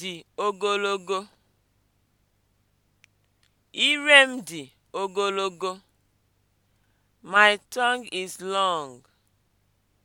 dị ogologo. Ire m dị ogologo. My tongue is long.